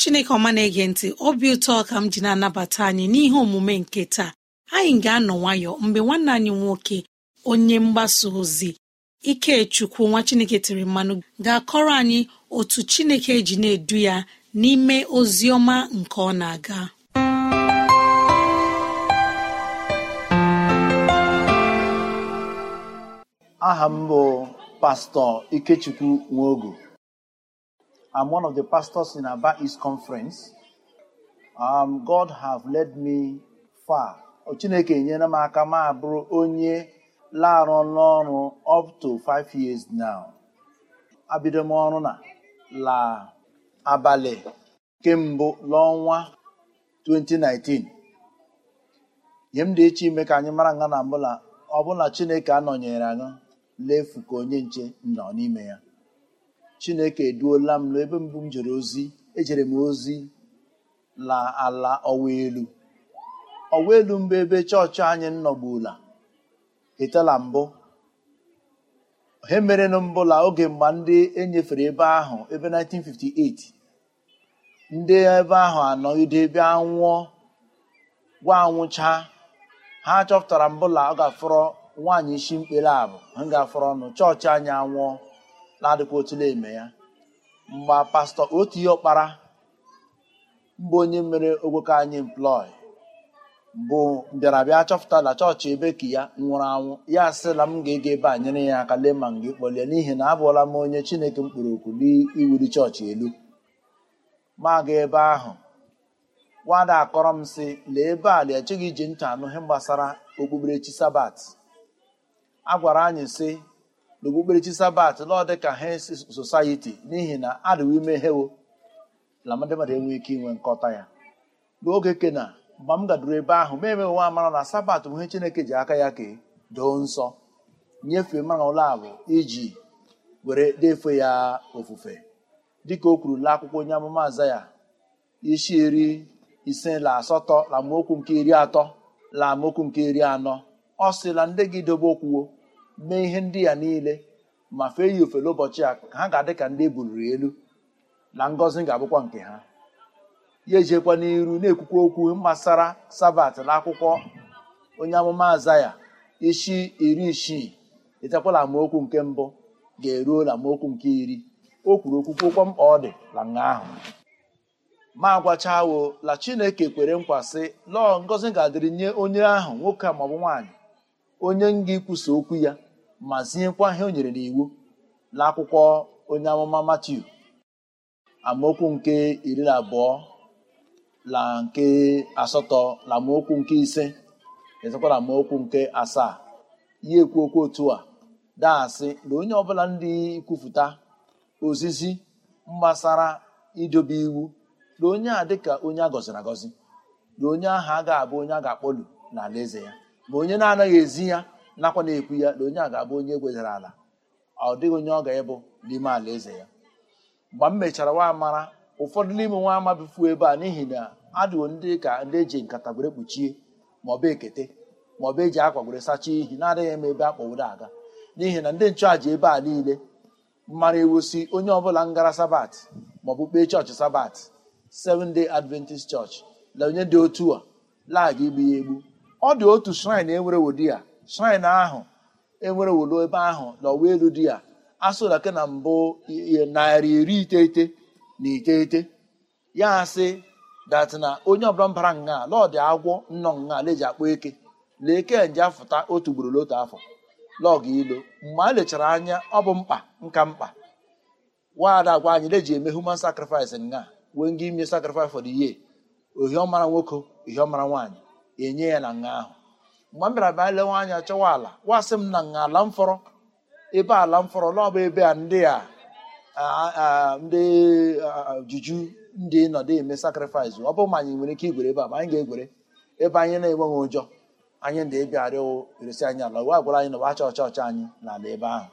chineke ọma na-ege ntị obi ụtọ ka m ji na-anabata anyị n'ihe omume nke taa anyị ga-anọ nwayọ mgbe nwanne anyị nwoke onye mgbasa ozi ikechukwu nwa chineke tiri mmanụ ga-akọrọ anyị otu chineke ji na-edu ya n'ime ozi ọma nke ọ na-aga aha m bụ pastọ ikechukwu nwogo I'm one of the pastors in Aba East Conference. Um, God have led me far. Chineke enyere m aka m abụrụ onye larụ n'ọrụ up to five years now. Abido m ọrụ na la abalị kemgbe n'ọnwa 2019. nye m dị iche ime ka anyị mara nga na mbụla ọbụla Chineke anọnyere anyị lefu ka onye nche nọ n'ime ya. chineke eduola m n'ebe mbụ m jere ozi ejere m ozi la ala ọwa elu ọwa elu mbụ ebe chọọchị anyị nọgbula etela mbụ he merenụ mbụla oge mgbe ndị enyefere ebe ahụ ebe 1958 ndị ebe ahụ anọgide ebe anwụọ gwa anwụcha ha chọpụtara mbụla ọ ga nwaanyị isi mkpere abụ ha ga ọnụ chọọchị anyị anwụọ na-adịkwa otule eme ya mgbe pastọ otu ihe ọkpara mba onye mere ogwoke anyị mplọị bụ mbịarabịa chọpụta na chọọchị ebe ka ya nwụrụ anwụ ya asịla m ga-ege ebe a nyere ya aka lee ma m ga n'ihi na abụọla m onye chineke mkpụrụ okwu n'iwuli chọọchị elu ma ebe ahụ nwada akọrọ m sị lee ebe a lee echeghị iji ntị anụ ihe gbasara okpukperechi sabat a gwara anyị sị n'okpukperechi sabat lọọ dị ka hens n'ihi na adịwo ime hewo na ndị mmadụ enweghị ike inwe nkọta ya n'oge kena mgbe m gaduru ebe ahụ ma emeghị nwa amara na sabat bụ ihe chineke ji aka ya kee doo nsọ nyefee mara ụlọ abụ iji were defe ya ofufe dịka o kwuru la akwụkwọ onye amụma aza ya isi iri ise la asatọ la mokwu nke iri atọ la amaokwu nke iri anọ ọ sị ndị gị dobe okwuwo mee ihe ndị a niile ma fee ya ofele ụbọchị a ha ga-adị ka ndị ebuliri elu na ngọzi ga-abụkwa nke ha ya ejekwa n'iru na-ekwukwa okwu gbasara sabat na akwụkwọ onye amụma azaya isi iri isii etekwala amaokwu nke mbụ ga-eruo na amaokwu nke iri o kwuru okwukwokwa mkpa ọ dị na nga ahụ ma agwachawo la chineke kwere nkwa sị lọọ ngọzi ga-adịrị nye onye ahụ nwoke maọbụ nwaanyị onye nga ikwusa okwu ya ma ziekwa ihe o nyere n'iwu n'akwụkwọ onye amụma Matiu amaokwu nke iri na abụọ na nke asatọ na amaokwu nke ise ezekwa na amaokwu nke asaa ya ekwu okwu otu a daasị na onye ọbụla ndị kwupụta ozizi mgbasara idobe iwu na onye a dịka onye a gọziri agọzi na onye ahụ ga abụ onye a ga-akpọlu ala eze ya ma onye na-anaghị ezi ya nakwa na-ekwu ya na onye a ga-abụ onye egwezara ala ọ dịghị onye ọ ga-ịbụ n'ime ala eze ya mgbe m mechara nwa amara ụfọdụ n'ime nwa ama bifuo ebe a n'ihi na adịwo ndị ka ndị eji nkata gwere kpuchie maọbụ ekete maọbụ eji akwa gwere sachaa ihi na-adịghị m ebe akpọwuru aga n'ihi na ndị nchụàja ebe a niile mara ewusi onye ọbụla ngara sabat maọbụ kpee chọọchị sabat seven day adventist church na onye dị otu a lagha igbu ya egbu ọ dị otu shrine e nwere wodi ya shrine ahụ enwere wolo ebe ahụ n'ọwa elu a ya asụlake na mbụ narị iri iteghete na iteghete ya sị dat na onye ọbụla mbara nga lọdị agwọ nnọ nga leji akpọ eke lee eke nje afụta otu ugboro n'otu afọ lọgụ ilo mgbe a lechara anya ọ bụ mkpa nka mkpa nwaada agwa anyị leji eme human sacrifice nga wee nga ime sacrifice for the year ohiọmara nwoke ohiọmara nwaanyị enye ya na nga ahụ mgbe m bịara bịa lewe anya chọwa ala wasị m na nga ala mfọrọ ebe ala mfọrọ naọbụ ebe a ndị a ndị juju ndị nọdụ eme sakrifis ọ bụ ma anyị nwere ike igwere ebe a ma anyị ga-egwere ebe anyị na-enweghị ụjọ anyị ndị bịa arịọ eresi anyị ala wa gwara anyị na wacha ọcha ọcha anyị n'ala ebe ahụ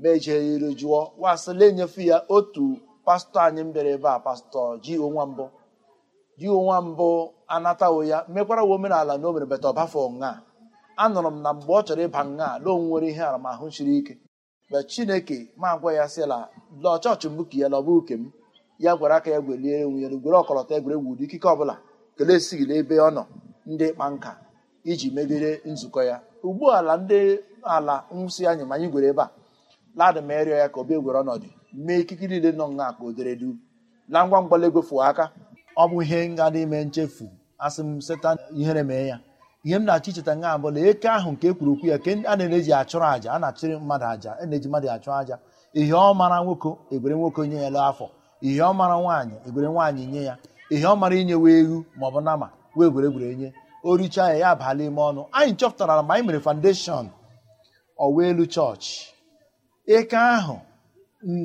ma ejeri jụọ wasịla enyefe ya otu pastọ anyị m bịara ebe a pastọ ji onwa mbụ ji onwa mbụ anatawo ya mekwara wa omenala na o mere beta ọbafọ nha anụrụ m na mgbe ọ chọrọ ịba nha na o nwere ihe aramahụ siri ike mgbe chineke ma gwa ya sịla lọ chọọchị mbụ ka ya lọbụ uke m ya gwara aka ya gwelie enwe ya gwere ọkọlọtọ egwuregwu ụdị ikike ọbụla kelee esighị n'ebe ọ nọ ndị ịkpa nka iji megide nzukọ ya ugbu ala ndị ala nwụsị anyị ma anyị gwere ebe a ladị ma ya ka obi egwere ọnọdụ mee ikike niile nọ nha ka o dere du na ngwa ngwa egwefu aka ọ bụ ihe dị ime nchefu asị m setan ihere mee ya ihe m na-achọ icheta nga na eke ahụ nke ekwuru okwu ya ke a na-eji achụrụ àjà a na-achụrụ mmadụ àjà a na-eji mmadụ achụ àjà ihe ọ mara nwoke egwere nwoke nye ya lụ afọ ihe ọ mara nwaanyị egwere nwaanyị nye ya ihe ọ mara inye wee ewu ma ọ bụ nama wee gwere gwere nye o richaa ya ya abala ime ọnụ anyị chọpụtara ma anyị mere foundation ọwa elu chọọchị eke ahụ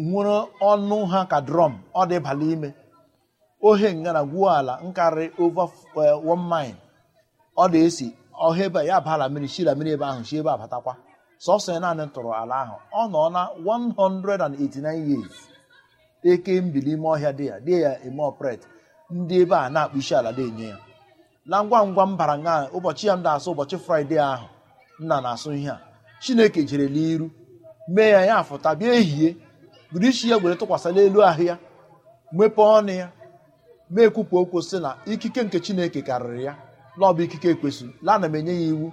nwere ọnụ ha ka drọm ọ dị ime ohe ngara gwuo ala nkarịrị over one mile ọ na-esi ọha ebe ya bala mmiri shira mmiri ebe ahụ shi ebe abatakwa sọsọ ya naanị tụrụ ala ahụ ọ nọ na 189 years eke mbili ime ọhịa dị ya dị ya eme ọpret ndị ebe a na-akpụ isi ala na-enye ya na ngwa ngwa m bara nga ụbọchị ya m na-asụ ụbọchị fraịde ahụ nna na-asụ ihe a chineke jere n'iru mee ya ya fụta bịa ehihie buru ya gwere tụkwasị n'elu ahụ ya mepee ọnụ ya na-ekwupụ okwu sị na ikike nke chineke karịrị ya na ikike ekwesịrị la na m enye ya iwu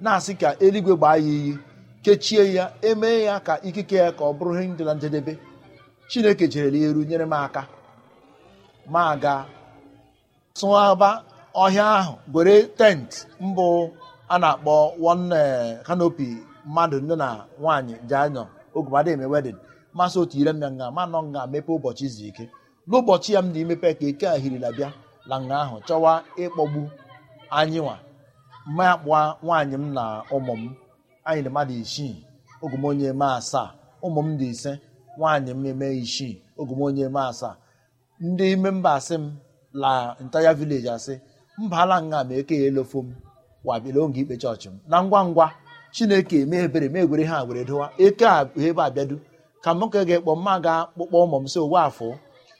na-asị ka eluigwe gbaa ya iyi kechie ya emee ya ka ikike ya ka ọ bụrụ ihe na njedebe chineke jerela ya eru nyere m aka ma ga tụaba ọhịa ahụ gwere tent mbụ a na-akpọ one kanopi eh, mmadụ nne na nwaanyị ji oge ogumadị eme masị otu ire m ya nga ma nọ nga ụbọchị izu ike n'ụbọchị ya m na imepe ka eke ahirila bịa na nga ahụ chọwa ịkpọgbu anyị nwa ma nwaanyị m na ụmụ m anyị mmadụ isii ogomonye eme asaa ụmụ m dị ise nwaanyị m eme isii ogomonye eme asaa ndị ime mba asị m la ntaya vileji asị mba ala nga ma eke ya elofo m wabịala oge ikpe chọọchị m na ngwa ngwa chineke eme ebere ma egwere ha were eke a ebe abịadu ka m ka ga-ekpọ mma ga akpụkpọ ụmụ m si owe afọ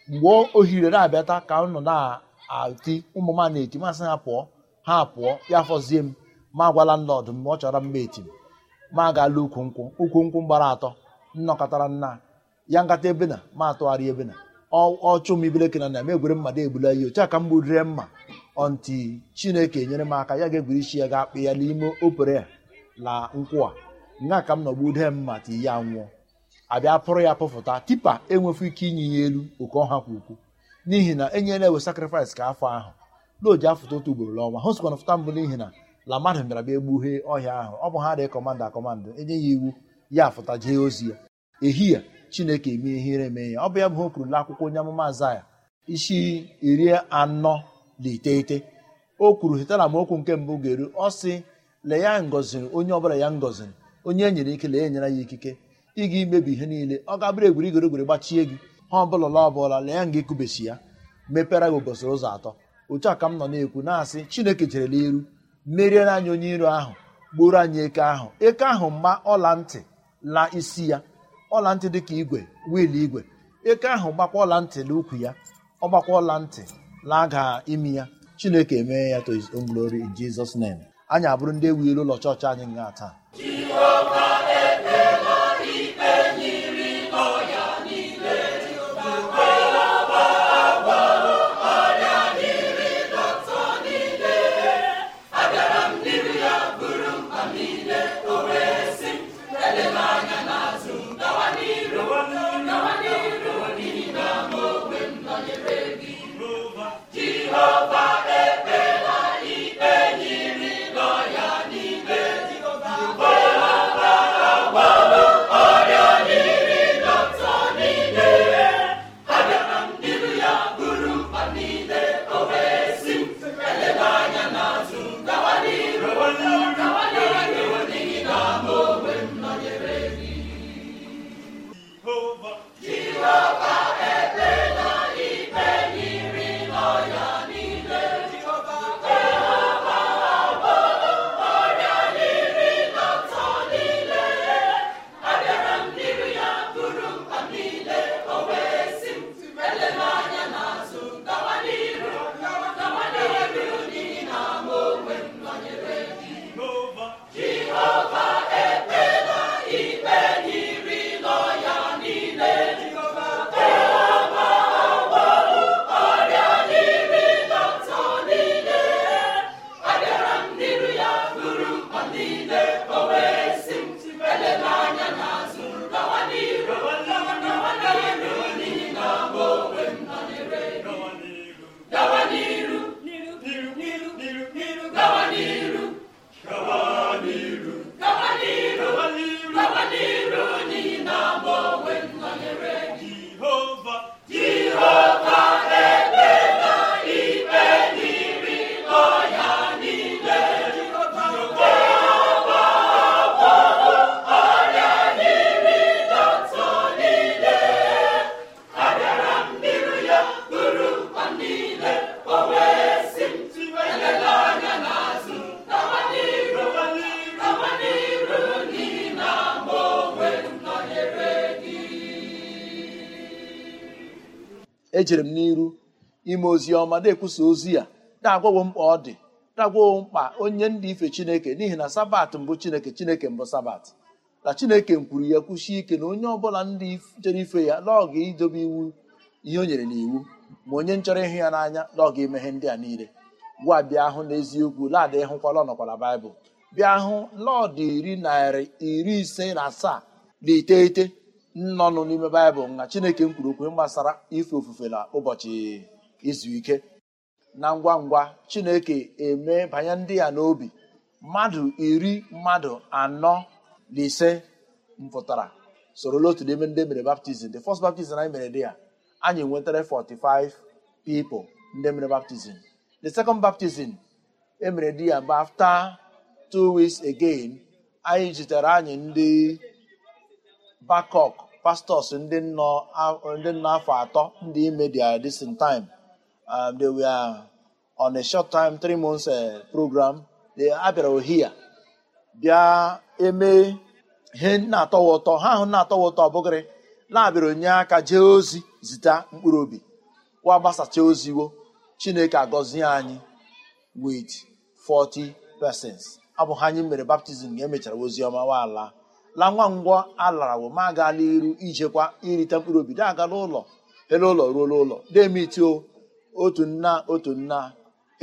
mgbe ohire na-abịata ka nọ na-ati ụmụ m na-eti masị ha pụọ ha pụọ ya fọzie m ma agwala nlọdụ mgbe ọ chọrọ mma eti m ma agaala ukwu nkwụ ukwu nkwụ gbara atọ nnọkọtara nna ya nkata ebe na ma atụgharị ebe na ọchụ m ibeleke na na m egwere mmadụ egbula ihe otu aka m gburire mma ọnti chineke nyere m aka ya ga-egwuri isi ya ga-akpị ya n'ime opere la nkwụ a nga ka m nọgbude mma ti ya nwụọ abịa pụrụ ya pụfụta tipa enwefu ike inye ya elu oke ọha kwa ukwu n'ihi na enyela ewe sakrifis ka afọ ahụ n'oji afụta otu ugboro n'ọnwa ha sikwana fụta mbụ n'ihi na la mmadụ bịara bịa egbughee ọhịa ahụ ọ bụ ha dị kọmanda akọmanda enye ya iwu ya afụta jee ozi ya ehihie chineke eme ihere eme ya ọ bụ ya bụ ha na akwụkwọ onye amụma azaya isi iri anọ na iteghete o kwuru hetara m okwu nke mbụ ga-eru ọ sị lee ya ngoziri onye bụla ya ngoziri onye e nyere ike lee enyere ya ikike ị ga imebi ihe niile ọ gabụrụ egwuri igorogoro gbachie gị ha ọbụla la ọbụla lee nga ịkụbesi ya mepere gị ụbọchị ụzọ atọ otu a ka m nọ na-ekwu na-asị chineke jerela iru merie na anyị onye iro ahụ gburu anyị eke ahụ eke ahụ mgba ọla ntị la isi ya ọla ntị dị ka igwe wiil igwe eke ahụ gbakwa ọla ntị na ukwu ya ọ gbakwa ọla ntị laga imi ya chineke emee ya to glory in Jesus name anyị abụrụ ndị ewu ụlọ chọọchị anyị nga taa ejere m n'iru ime ozi ọma na-ekwusa ozi ya na-agwawo mkpa ọ dị na-agwawo mkpa onye ndị ife chineke n'ihi na sabat mbụ chineke chineke mbụ sabat na chineke kwuru ya kwusie ike na onye ọbụla ndị chere ife ya n'ọga idobe iwu ihe o nyere n'iwu ma onye nchọrọ ịhụ ya n'anya n'ọga emeghe ndị a niile gwa bịa ahụ n'eziokwu laadị hụkwala ọnọkwala baịbụl bịa hụ lọdụ iri narị iri ise na asaa na iteghete nnọnụ n'ime baịbụl na chineke kwuru okwu gbasara ife ofufe na ụbọchị izu ike na ngwa ngwa chineke eme banye ndị ya n'obi mmadụ iri mmadụ anọ na ise mpụtara sorola otu n'ime ndị mere baptizim the fọst baptizim anyị mere dị ya anyị nwetara 45 pipo ndị mere baptizim the second baptizim emere di ya but afta two weeks again anyị jitere anyị ndị bakok. pastors ndị nọ afọ atọ ndị ime their distant time um, they were on a short time three months uh, program they abịara ohia bịa eme ihe na-atọwa ụtọ ha ahụ na-atọwa ụtọ ọbụgịrị na-abịara onye aka jee ozi zita mkpụrụ obi wa gbasacha oziwo chineke agọzie anyị with 40 persons abụghị ha anyị mere baptizim ga emechara ozi ọma ala. la nwa ngwọ alara ma agala iru ijekwa irite mkpụrụ obi da agala ụlọ ele ụlọ ruola ụlọ demitio otu nna otu nna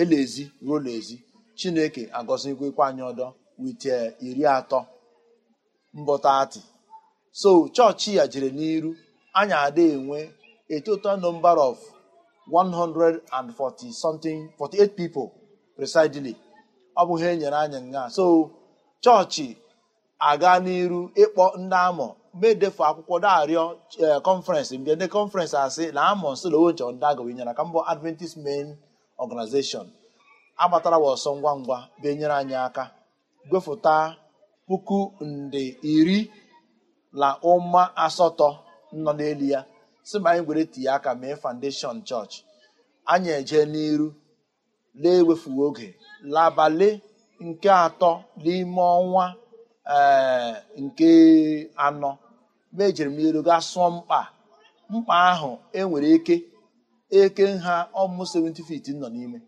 elezi ruo n'ezi chineke agọzikwa anyị ọdọ wit iri atọ mbọtati so chọọchị ya jere n'iru anyị ada enwe a total number of 140 something 48 people presidely ọ bụghị enyere anyị nga so chọọchị aga n'iru ịkpọ e, ndị amọ medefu akwụkwọ darịọ kọnferensị mbịa ndị kọnferensị asị na amọ nsolowo nchọ ndị agawa nyere ka mbọ adventist main organization agbatara wa ọsọ ngwa ngwa benyere anyị aka gwefụta puku nde iri na ụma asatọ nọ n'elu ya si ma anyị gwere tinye aka mee foundation chọọchị anyị eje n'iru lee ewefughị oge labalị nke atọ n'ime ọnwa ee eh, nke anọ mejiri m elu gaa sụọ mkpa mkpa ahụ enwere eke eke nha ọmụ 70 feet nọ n'ime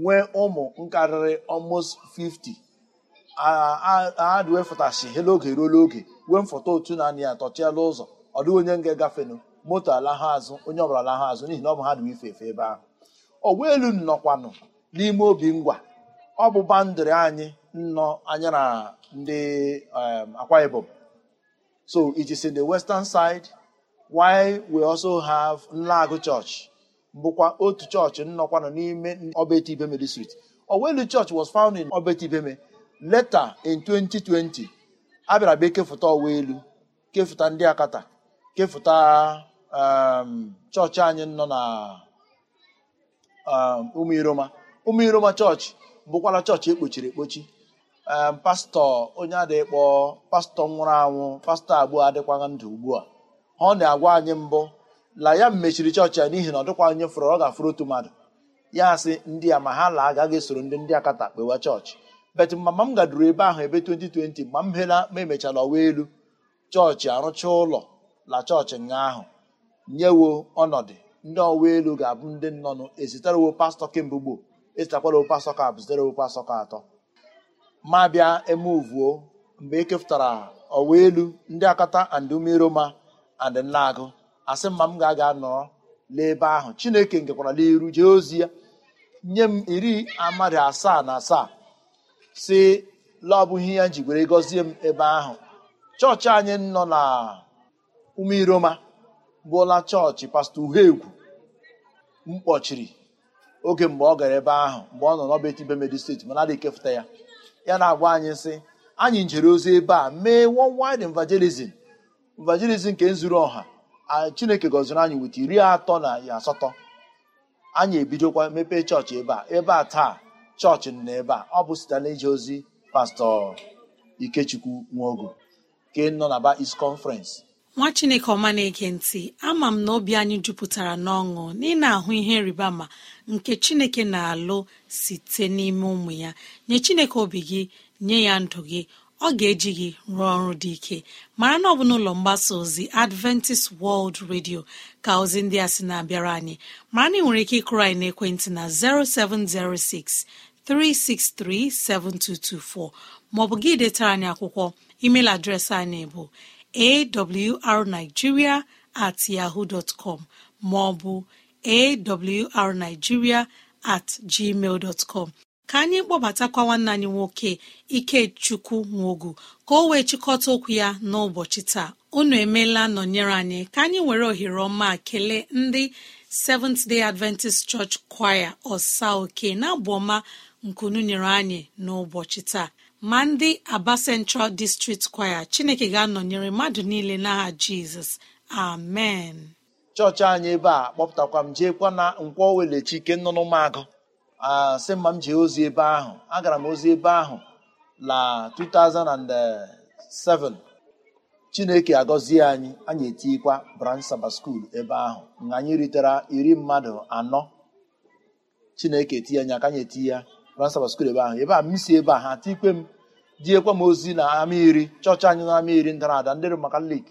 nwee ụmụ nkarịrị ọmụ 50 adwefụtashi he oge ruo n'oge wee mfọta otu naanị anị ya ụzọ ọ dịghị onye nga gafenụ moto alahụ azụ onye ọbụla alahụ azụ n'ihi na ọ bụ ha dị ife efe ebe ahụ ọgwa elu nọkwanụ n'ime obi ngwa ọ bụ bandịrị anyị nnọ anya na ndị um, Akwa Ibom. So it is in the western side why we also have Nlagu Church bụkwa otu chọọchị nnọkwa etu n'ime Obeti Ibeme district. Owelu Church was found in Obeti Ibeme later in 2020 a bịara bịa kefụta Owelu kefụta ndị Akata kefụta um, chọọchị anyị nọ na umu iroma chọọchị bụkwara chọọchị ekpochiri ekpochi pastọ onye adịkpọ pastọ nwụrụ anwụ pastọ abụọ adịkwaghị ndụ ugbu a ọ na-agwa anyị mbụ la ya mechiri chọọchị ya n'ihi na ọ dịkwa onye fụrụ ọ ga-afụrụ otu mmadụ ya sị ndị a ma ha la agaghị esoro ndị ndị akata kpewa chọọchị bet mama m gaduru ebe ahụ ebe 2020 mgbe m hela ma emechala ọwa elu chọọchị arụcha ụlọ la chọọchị nga ahụ nyewo ọnọdụ ndị ọwa elu ga-abụ ndị nnọnụ ezitarewo pastọ kemgbe gboo ezitakwara pastọ ka abụ zitarewo pastọ ka atọ ma bịa emuvuo mgbe e kefụtara ọwa elu ndị akata and umeroma and nlaagụ asị mma m ga-aga nọrọ n'ebe ahụ chineke nkekwara n'iru jee ozi ya nye m iri amadị asaa na asaa si laọbụghị ya njigwere gọzie m ebe ahụ chọọchị anyị nọ na umeiroma bụla chọọchị pastọ m kpọchiri oge mgbe ọ gara ebe ahụ mgbe ọ nọ n'ọba etibe medi steeti mana adịghị ekefụta ya ya na agwa anyị sị anyị njere ozi ebe a mee wide evangelism evangelism nke zuru ọha chineke gọziri anyị weta iri atọ na asatọ anyị ebidokwa mepee chọọchị ebe a ebe a taa chọọchị nọ ebe a ọ bụ site na ozi pastọ ikechukwu nwogo nke nọ na ba is conference nwa chineke ọma na-ege ntị ama m na obi anyị jupụtara n'ọṅụ na ahụ ihe rịba ma nke chineke na-alụ site n'ime ụmụ ya nye chineke obi gị nye ya ndụ gị ọ ga-eji gị rụọ ọrụ dị ike mara na ọ bụ n'ụlọ mgbasa ozi adventist world radio ka ozi ndị a sị na-abịara anyị mara na ị nwere ike ịkụrụ anyị n'ekwentị na 0706 363 7224 maọbụ gị detara anyị akwụkwọ email adreesị anyị bụ awrnigeria at yahoo com maọbụ awrnigeria at gmail com. ka anyị kpọbatakwa nwanne anyị nwoke ikechukwu nwogu ka o wee chịkọta okwu ya n'ụbọchị taa unu emeela nọnyere anyị ka anyị were ohere ọma kelee ndị seventh day adventist church choir ọsa oke na abụ ọma nkunu nyere anyị n'ụbọchị taa ma ndị aba central district kwaya chineke ga-anọnyere mmadụ niile n'agha jizọs amen chọọchị anyị ebe a kpọpụtakwa m jeekwa na nkwọ welechi ike nnụnụ magụ asị mma m jee ozi ebe ahụ agara m ozi ebe ahụ na 2007 chineke agọzie anyị anyị etikwa branch saba skuul ebe ahụ na anyị ritere iri mmadụ anọ chineke eti anyị aka anyị eti ya transfa skul ebe ahụ ebe a m si ebe a ha ati ikpe m diekwa m ozi na ama iri chọọchị anyị na ama iri ndara ada ndị Romakalik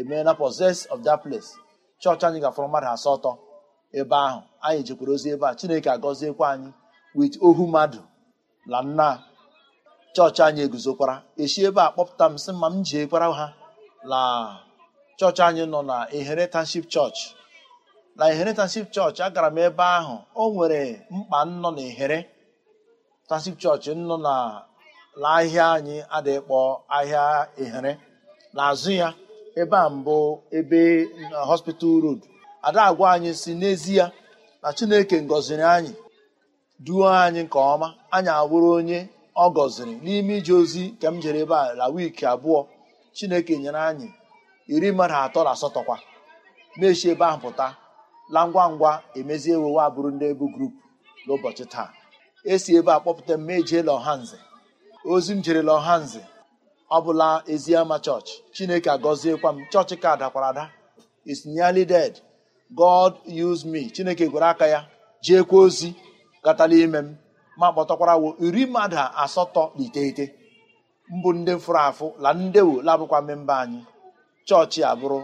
emeela of that place chọọchị anyị gafọrọ mmadụ asatọ ebe ahụ anyị jekwara ozi ebe a Chineke agọziekwa anyị wit ohu mmadụ na nna chọọchị anyị eguzokwara echi ebe a kpọpụta m sị ma m jeekwara ha na chọọchị anyị nọ na Inheritance chọọchị na Inheritance chọọchị agara m ebe ahụ o oh, nwere mkpa mm, nnọ na ehere tasik chọọchị nọ na ahịa anyị adịkpọ ahịa ehere n'azụ ya ebe a mbụ ebe uh, hospital road ada agwa anyị si n'ezie na chineke ngọziri anyị duo anyị nke ọma anyị awụrụ onye ọ gọziri n'ime ije ozi nke m jere ebe a la wiiki abụọ chineke nyere anyị iri mmadụ atọ na asatọ kwa mechi ebe ahụ pụta la ngwa ngwa emezie ewewe abụrụ ndị ebu grup n'ụbọchị taa esi ebe a kpọpụta m ejeela lọhanze ozi m jere lọhanze ọ bụla eziama chọọchị chineke agọziekwa m chọọchị ka dakwara ada is nearly dead god use me chineke gwere aka ya jeekwa ozi gatala ime m ma kpọtakwara wo iri mmadụ asatọ na iteghete mbụ ndị fụrụ afụ la ndewo labụkwa mmemba anyị chọọchị abụrụ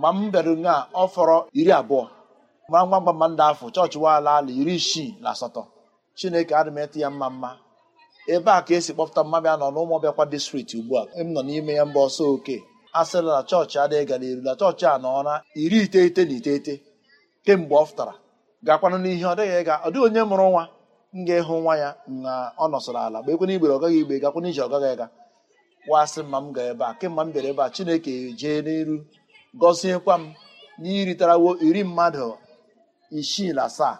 mgbe m bịara nga ọ fọrọ iri abụọ mara ngwa ngwa afọ chọọchị waala ala iri isii na asatọ chineke adị ya mma mma ebe a ka esi kpọpụta mmabịa nọ na ọbịakwa distrikti ugbu a m nọ n'ime ya mba ọsọ oke a na chọọchị adịghị gara eru na chọọchị a nọ na iri iteghete na iteghete kemgbe ọ fụtara gakwanụ n'ihe ọ dịghị ịga ọ dịghị onye mụrụ nwa m ga-ịhụ nwa ya na ọ nọsọrọ ala mgbe ekwe n'igbere ọ gaghị igbe gakwana ije ọgaghị ịga wasị mma m gaa ebe a kemgbe m bịara ebe a chineke jee n'elu gọziekwa m n'iritarawo iri mmadụ isii na asaa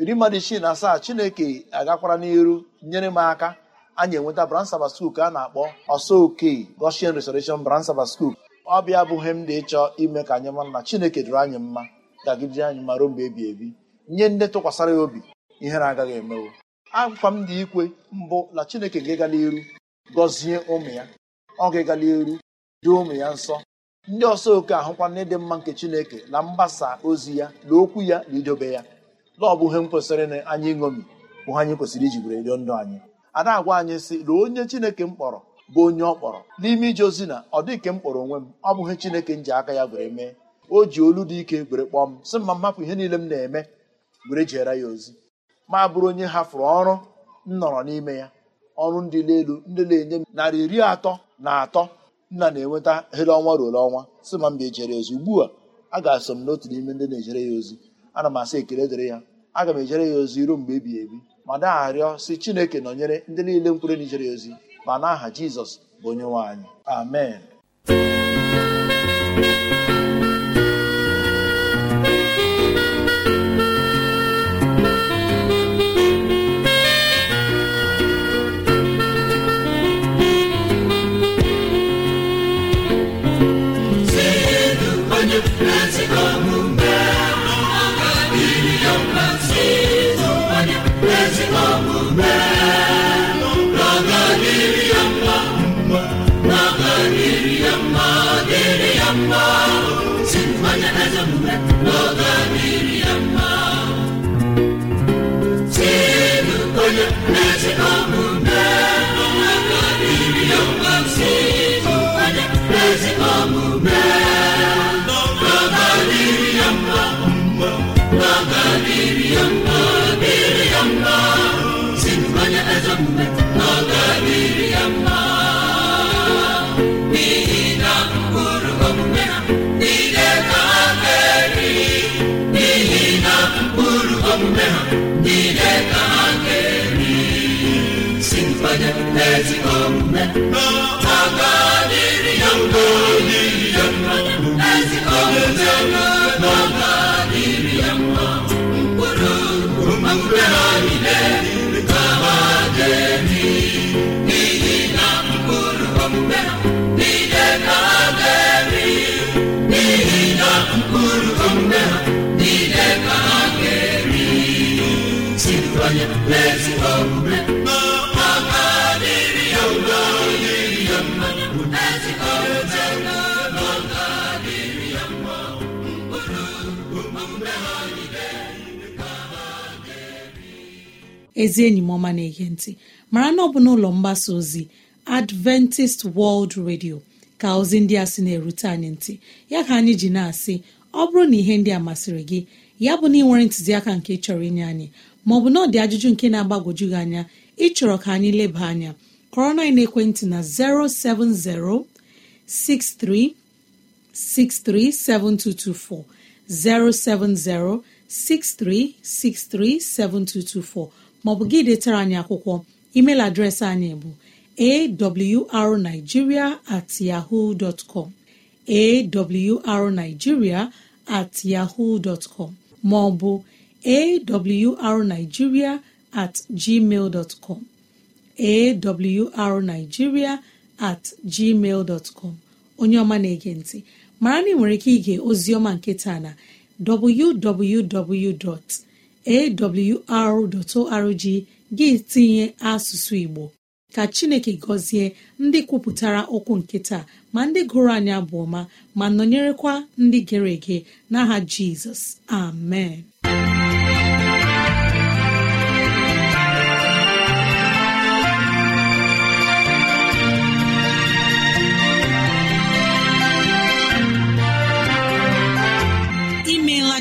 iri mmadụ isii na asaa chineke agakwara n'iru nyere m aka anyị enweta branch Sabbath School ka a na-akpọ ọsọ okei Goshen Restoration branch Sabbath School ọ bịa abụghị m dị ịchọ ime ka anyị mara na chineke dụrụ anyị mma gagidere anyị ma ruo mgbe ebi ebi nye ndị tụkwasara ya obi ihere agaghị emewo akwa m dị ikwe mbụ na chineke ga gala iru gọzie ụmụ ya ọ ga-egala iru dị ụmụ ya nsọ ndị ọsọ oke ahụkwa n'ịdị mma nke chineke na mgbasa ozi ya na okwu ya na idobe ya na ọ bụghị ihe m kwesịrị anyị ṅomi bụ anyị kwesịrị iji were rio ndụ anyị ada agwa anyị sị na onye chineke m kpọrọ bụ onye ọ kpọrọ n'ime ije ozi na ọ dị ke m kpọrọ onwe m ọ bụghị chineke m ji aka ya gwere mee o ji olu dị ike were kpọọ m sị mma mmapụ ihe niile m na-eme were jeere ya ozi ma bụrụ onye hafụrụ ọrụ m nọrọ n'ime ya ọrụ ndị elu ndị na-enye m narị iri atọ na atọ nna na-enweta hele ọnwa ọnwa si ma mba ejere ya ozi ugbu a a ga-asọ m n'otu n'ime ndị na-ejere ya ozi ana m asị ekele dịrị ya aga m ejere ya ozi ruo mgbe ebighị ebi ma na-arịọ si chineke nọnyere ndị niile mkpụrụ na ijere ya ozi ma n'aha jizọs bụ onye nwe amen mmiri ya mmasị ịzụ onye ezi omume mkpụrụ omume ha niile ka ha ezi enyi m ọma na-ege ntị mara na ọ bụ n'ụlọ mgbasa ozi adventist world radio ka ozi ndị a sị na-erute anyị ntị ya ka anyị ji na-asị ọ bụrụ na ihe ndị a masịrị gị ya bụ na ị nwere ntụziaka nke chọrọ inye anyị maọbụ na ọ dị ajụjụ nke na-agbagwoju gị anya ịchọrọ ka anyị leba anya kọrọ na ekwentị na 07063637224 07063637224 maọbụ gị detara anyị akwụkwọ email adreesị anyị bụ awrnigeria at yahoo dot bụ. at yahoo dot maọbụ awrnigeria at gmail com onye ọma na-ege ntị mara na ị nwere ike ige ozioma nke taa na www.awr.org gị tinye asụsụ Igbo ka Chineke gọzie ndị kwupụtara okwu nke taa ma ndị gụrụ anya abụ ma nọnyerekwa ndị gere ege n'aha Jizọs amen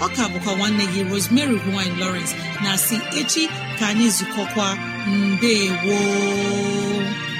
ọ ka bụkwa nwanne gị Rosemary gine Lawrence na si echi ka anyị zukọkwa mbe woo